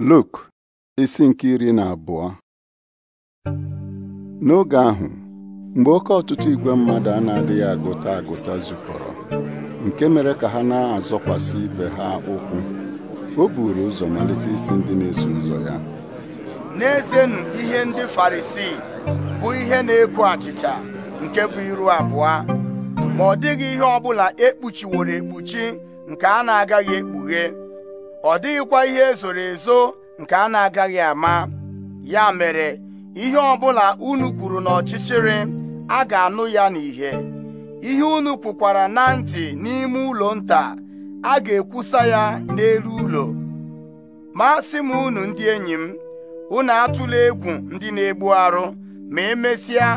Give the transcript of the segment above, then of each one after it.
Luk isi nke iri na abụọ n'oge ahụ mgbe oke ọtụtụ igwe mmadụ a na-adịghị agụta agụta zukọrọ nke mere ka ha na-azọkwasị ibe ha ụkwụ o buru ụzọ malite isi ndị na-eso ụzọ ya n'ezenụ ihe ndị farisii bụ ihe na eku achịcha nke bụ iru abụọ ma ọ dịghị ihe ọ bụla ekpuchiworo ekpuchi nke a na-agaghị ekpughe ọ dịghịkwa ihe ezoro ezo nke a na-agaghị ama ya mere ihe ọbụla unu kwuru n'ọchịchịrị a ga-anụ ya n'ìhè ihe unu kwukwara na ntị n'ime ụlọ nta a ga-ekwusa ya n'elu ụlọ ma sị m unu ndị enyi m unu atụla egwu ndị na-egbu arụ ma emesịa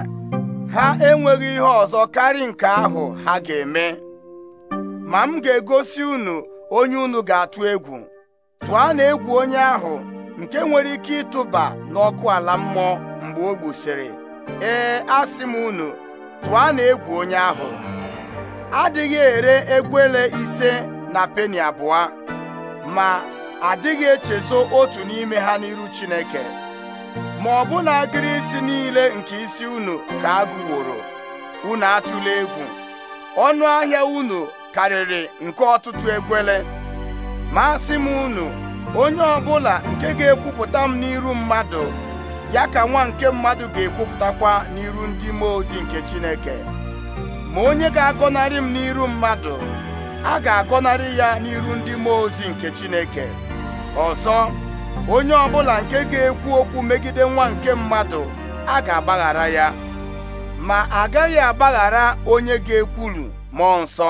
ha enweghị ihe ọzọ karị nke ahụ ha ga-eme ma m ga-egosi unu onye unu ga-atụ egwu tụọ na egwu onye ahụ nke nwere ike ịtụba n'ọkụ ala mmụọ mgbe o gbusịrị ee asị m unu tụọ na egwu onye ahụ adịghị ere egwele ise na peni abụọ ma adịghị echezo otu n'ime ha n'iru Chineke ma ọ bụ na agịrị isi niile nke isi unu ka agụworo unu atụla egwu ọnụ ahịa unu karịrị nke ọtụtụ egwele ma asị m unu onye ọbụla nke ga-ekwupụta m n'iru mmadụ ya ka nwa nke mmadụ ga-ekwupụtakwa n'iru ndị mmụọ nke Chineke ma onye ga-agọnarị m n'iru mmadụ a ga-agọnarị ya n'iru ndị mmụọ ozi nke Chineke ọsọ onye ọ bụla nke ga-ekwu okwu megide nwa nke mmadụ a ga-agbaghara ya ma agaghị agbaghara onye ga-ekwulu mmụọ nsọ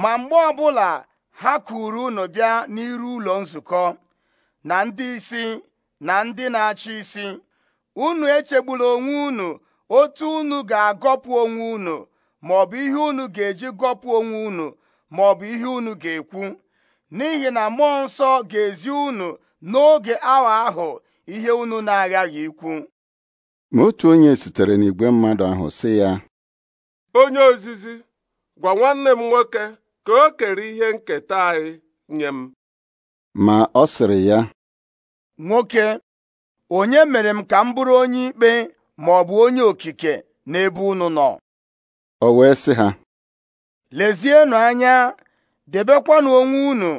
ma mgbe ọbụla ha kuru unu bịa n'iru ụlọ nzukọ na ndị isi na ndị na-achị isi unu echegbula onwe unu otu unu ga-agọpụ onwe unu maọbụ ihe unu ga-eji gọpụ onwe unu maọbụ ihe unu ga-ekwu n'ihi na mmụọ nsọ ga-ezi unu n'oge awa ahụ ihe unu na-aghaghị ikwu ma otu onye sitere n'igwe mmadụ ahụ sị ya onye ozizi gwa nwanne m nwoke ka o kere ihe nketa anyị nye m ma ọ sịrị ya nwoke onye mere m ka m bụrụ onye ikpe ma ọ bụ onye okike n'ebe unu nọ o wee sị ha lezienụ anya debekwanụ onwe unu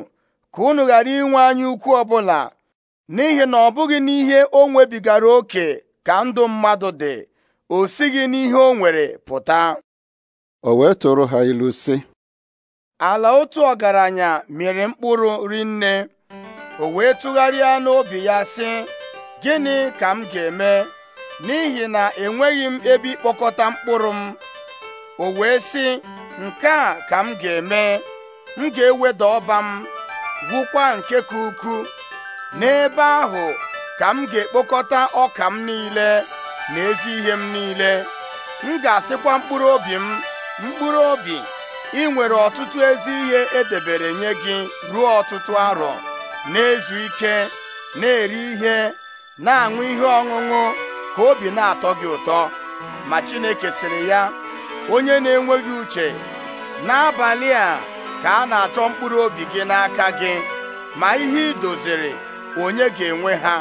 ka unu ghara inwe anya ukwu ọbụla n'ihi na ọ bụghị n'ihe o nwebigara oke ka ndụ mmadụ dị o sighị n'ihe o nwere pụta o wee tụrụ ha ilu sị ala otu ọgaranya mere mkpụrụ rinne o wee tụgharịa n'obi ya sị gịnị ka m ga-eme n'ihi na enweghị m ebe ịkpọkọta mkpụrụ m o wee sị nke a ka m ga-eme m ga-eweda ọba m gwụkwa nke ka ukwu n'ebe ahụ ka m ga-ekpokọta ọka m niile na ezi ihe m niile m ga-asịkwa mkpụrụ obi m mkpụrụ obi ị nwere ọtụtụ ezi ihe e debere nye gị ruo ọtụtụ arọ na-ezu ike na-eri ihe na-aṅụ ihe ọṅụṅụ ka obi na-atọ gị ụtọ ma Chineke sịrị ya onye na-enweghị uche n'abalị a ka a na-achọ mkpụrụ obi gị n'aka gị ma ihe ị doziri onye ga-enwe ha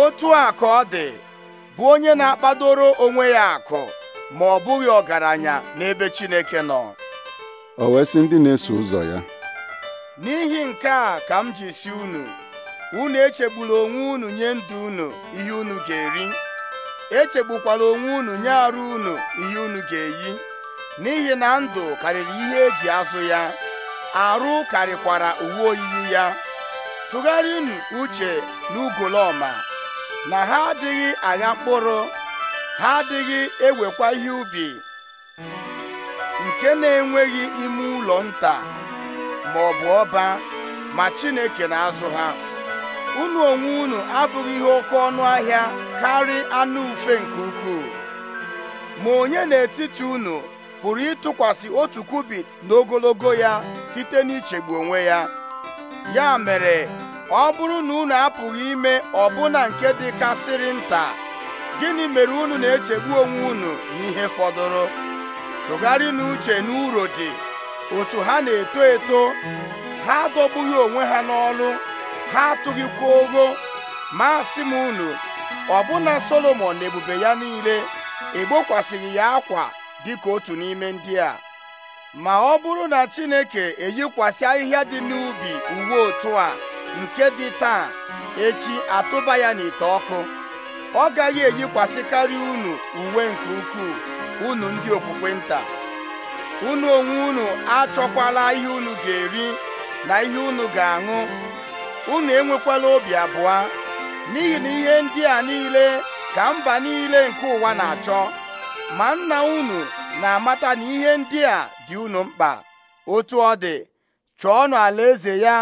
otu a ka ọ dị bụ onye na-akpadoro onwe ya akụ ma ọ bụghị ọgaranya n'ebe Chineke nọ o wee sị ndị na-eso ụzọ ya n'ihi nke a ka m ji si unu unu echegburu onwe unu nye ndụ unu ihe unu ga-eri echegbukwala onwe unu nye arụ unu ihe unu ga-eyi n'ihi na ndụ karịrị ihe eji azụ ya arụ karịkwara uwe oyiyi ya tụgharịnụ uche n'ugolọma na ha adịghị agha mkpụrụ ha adịghị ewekwa ihe ubi nke na-enweghị ime ụlọ nta ma ọ bụ ọba ma Chineke na-azụ ha unu onwe unu abụghị ihe oke ọnụ ahịa karị anụ ufe nke ukwuu ma onye n'etiti unu pụrụ ịtụkwasị otu kubit n'ogologo ya site n'ichegbu onwe ya ya mere ọ bụrụ na unu apụghị ime ọbụna nke dịkasịrị nta gịnị mere unu na-echegbu onwe unu n'ihe fọdụrụ tụgharị n'uche na uro dị otu ha na-eto eto ha adọgbughị onwe ha n'ọlụ ha atụghịkwa ogo ma asị m unu ọbụna solomon na ebube ya niile egbokwasịghị ya akwa dịka otu n'ime ndị a ma ọ bụrụ na Chineke eyikwasị ahịhịa dị n'ubi uwe otu a nke dị taa echi atụba ya n'ite ọkụ ọ gaghị eyikwasịkarị unu uwe nke ukwuu unu ndị okpukpe nta unu onwe unu achọkwala ihe unu ga-eri na ihe unu ga-aṅụ unu enwekwala obi abụọ n'ihi na ihe ndị a niile ka mba niile nke ụwa na-achọ ma nna unu na-amata na ihe ndị a dị unu mkpa otu ọ dị ala eze ya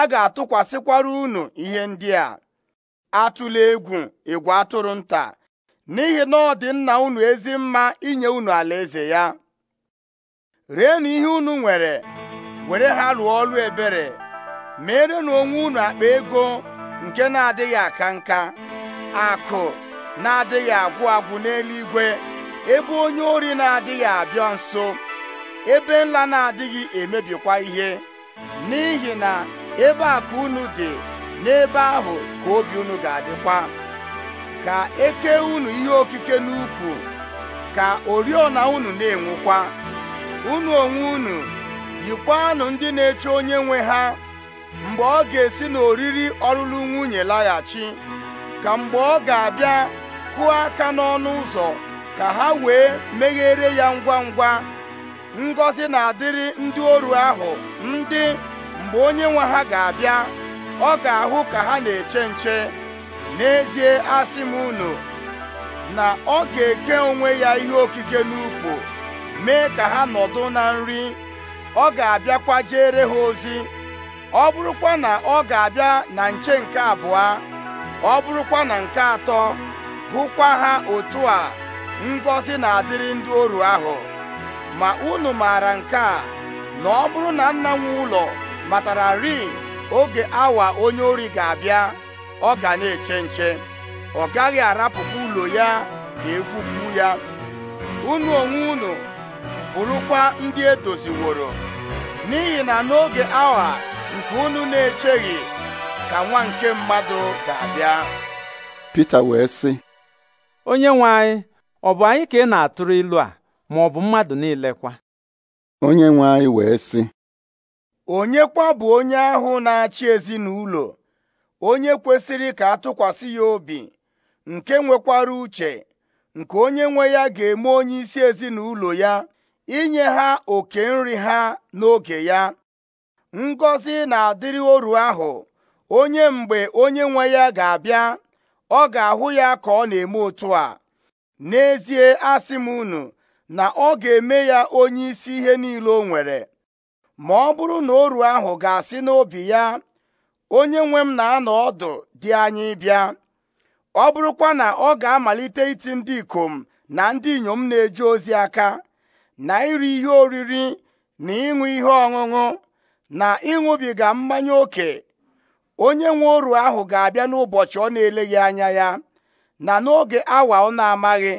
a ga-atụkwasịkwara unu ihe ndị a atụla egwu egwu atụrụ nta n'ihi na ọ dị nna unu ezi mma inye unu alaeze ya rienụ ihe unu nwere were ha lụọ ọlụ ebere merenụ onwe unu akpa ego nke na-adịghị aka nka akụ na-adịghị agwụ agwụ n'eluigwe ebe onye ori na-adịghị abịa nso ebe nla na-adịghị emebikwa ihe n'ihi na ebe akụ unu dị n'ebe ahụ ka obi unu ga-adịkwa ka eke unu ihe okike n'ukwu ka oriọna unu na enwekwa unu onwe unu yikwanụ ndị na-eche onye nwe ha mgbe ọ ga-esi n'oriri ọlụlụ nwunye laghachi ka mgbe ọ ga-abịa kụọ aka n'ọnụ ụzọ ka ha wee meghere ya ngwa ngwa ngọzi na-adịrị ndị oru ahụ ndị mgbe onye nwe ha ga-abịa ọ ga-ahụ ka ha na-eche nche n'ezie asị m unu na ọ ga-eke onwe ya ihe okike n'ukwu mee ka ha nọdụ na nri ọ ga-abịakwa jere ha ozi ọ bụrụkwa na ọ ga-abịa na nche nke abụọ ọ bụrụkwa na nke atọ hụkwa ha otu a ngọzi na-adịrị ndị oru ahụ ma unu maara nke a na ọ bụrụ na nna nwe ụlọ rii. oge awa onye ori ga-abịa ọ ga na-eche nche ọ gaghị arapụkwa ụlọ ya ka egwupụ ya unu onwe unu bụrụkwa ndị edoziworo n'ihi na n'oge awa nke unu na-echeghị ka nwa nke mmadụ ga-abịa Pita wee sị onye nwe anyị ọ bụ anyị ka ị na-atụrụ ilu a ma ọ bụ mmadụ niile kwa onye nwe anyị wee sị onye kwa bụ onye ahụ na-achị ezinụlọ onye kwesịrị ka atụkwasị ya obi nke nwekwara uche nke onye nwe ya ga-eme onye isi ezinụlọ ya inye ha oke nri ha n'oge ya ngọzi na-adịrị oru ahụ onye mgbe onye nwe ya ga-abịa ọ ga-ahụ ya ka ọ na-eme otu a n'ezie asị m unu na ọ ga-eme ya onye isi ihe niile o nwere ma ọ bụrụ na oru ahụ ga-asị n'obi ya onye nwe m na-anọ ọdụ dị anyị bịa ọ bụrụkwa na ọ ga-amalite iti ndị ikom na ndị inyom na-eje ozi aka na iri ihe oriri na ịṅụ ihe ọṅụṅụ na ịṅụbiga mmanya ókè onye nwe oru ahụ ga-abịa n'ụbọchị ọ na-eleghị anya ya na n'oge awa ọ na-amaghị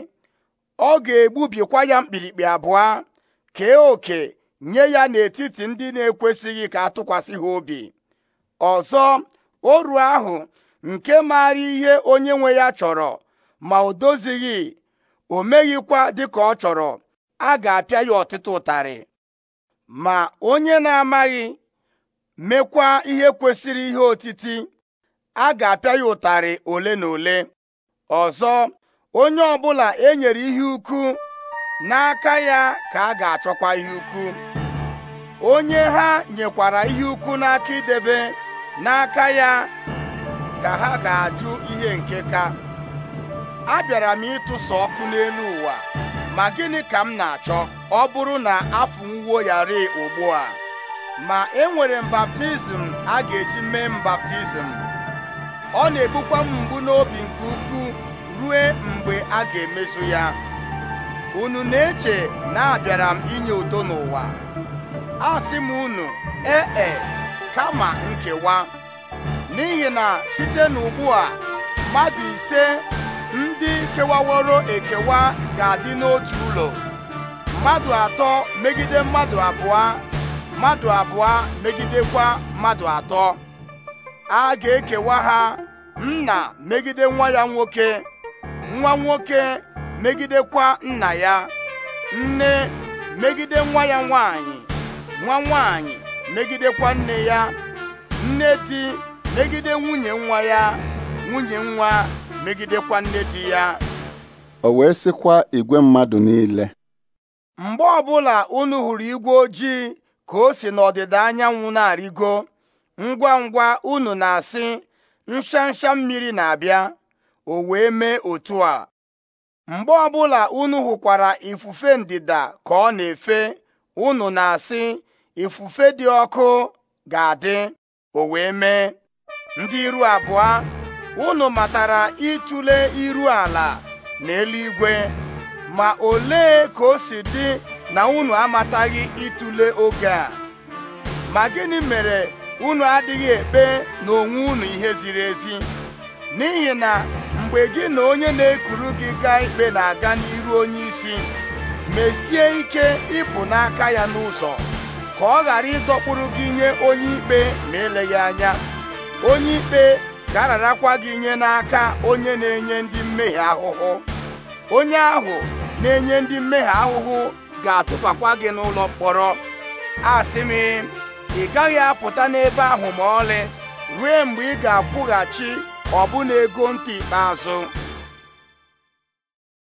ọ ga-egbubikwa ya mkpirikpi abụọ kee oke nye ya n'etiti ndị na-ekwesịghị ka atụkwasị ha obi ọzọ oru ahụ nke maara ihe onye nwe ya chọrọ ma o dozighị o meghịkwa dịka ọ chọrọ a ga-apịa ya ọtụtụ ụtarị ma onye na-amaghị mekwa ihe kwesịrị ihe otiti a ga-apịa ya ụtarị ole na ole ọzọ onye ọbụla e nyere ihe ukwu n'aka ya ka a ga-achọkwa ihe ukwu onye ha nyekwara ihe ukwu n'aka idebe n'aka ya ka ha ga-ajụ ihe nke ka A bịara m ịtụsa ọkụ n'elu ụwa ma gịnị ka m na-achọ ọ bụrụ na afọ ya ri ugbu a ma enwere m baptizim a ga-eji mee m baptizim ọ na-ebukwa m mgbu n'obi nke ukwuu rue mgbe a ga-emezu ya unu na-eche na abịara m inye udo n'ụwa a sị m unu ee e, kama nkewa n'ihi na site n'ugbu a mmadụ ise ndị kewaworo ekewa ga-adị n'otu ụlọ mmadụ atọ megide mmadụ abụọ mmadụ abụọ megidekwa mmadụ atọ a ga-ekewa ha nna megide nwa ya nwoke nwa nwoke megidekwa nna ya nne megide nwa ya nwanyị nwa nwanyị megidekwa nne ya nne di megide nwunye nwa ya nwunye nwa megidekwa nne di ya o wee sịkwa igwe mmadụ niile mgbe ọbụla unu hụrụ igwe ojii ka o si n'ọdịda anyanwụ na-arịgo ngwa ngwa unu na-asị nshansha mmiri na-abịa o wee mee otu a mgbe ọbụla unu hụkwara ifufe ndịda ka ọ na-efe unu na-asị ifufe dị ọkụ ga-adị o wee mee ndị iru abụọ unu matara ịtụle iru ala na eluigwe ma ole ka o si dị na unu amataghị ịtụle oge a ma gịnị mere unu adịghị ekpe na onwe unu ihe ziri ezi n'ihi na mgbe gị na onye na-ekuru gị gaa ikpe na-aga n'ihu onye isi mesie ike ịpụ n'aka ya n'ụzọ ka ọ ghara ịdọkpụrụ gị nye onye ikpe ma eleghị anya onye ikpe ga-ararakwa gị nye n'aka onye na-enye ndị mmehie ahụhụ onye ahụ na-enye ndị mmehie ahụhụ ga-atụbakwa gị n'ụlọ mkpọrọ asị m ị gaghị apụta n'ebe ahụ ma ọlị ruo mgbe ị ga-akwụghachi ọ bụ na ego ntị ikpeazụ